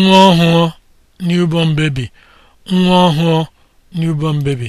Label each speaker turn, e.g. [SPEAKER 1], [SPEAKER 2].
[SPEAKER 1] nwa ọhụụ newborn baby nwa ọhụụ newborn baby